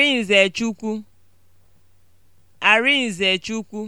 Arinzechukwu. Arinzechukwu